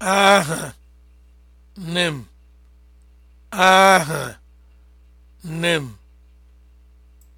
aha nne m aha nne m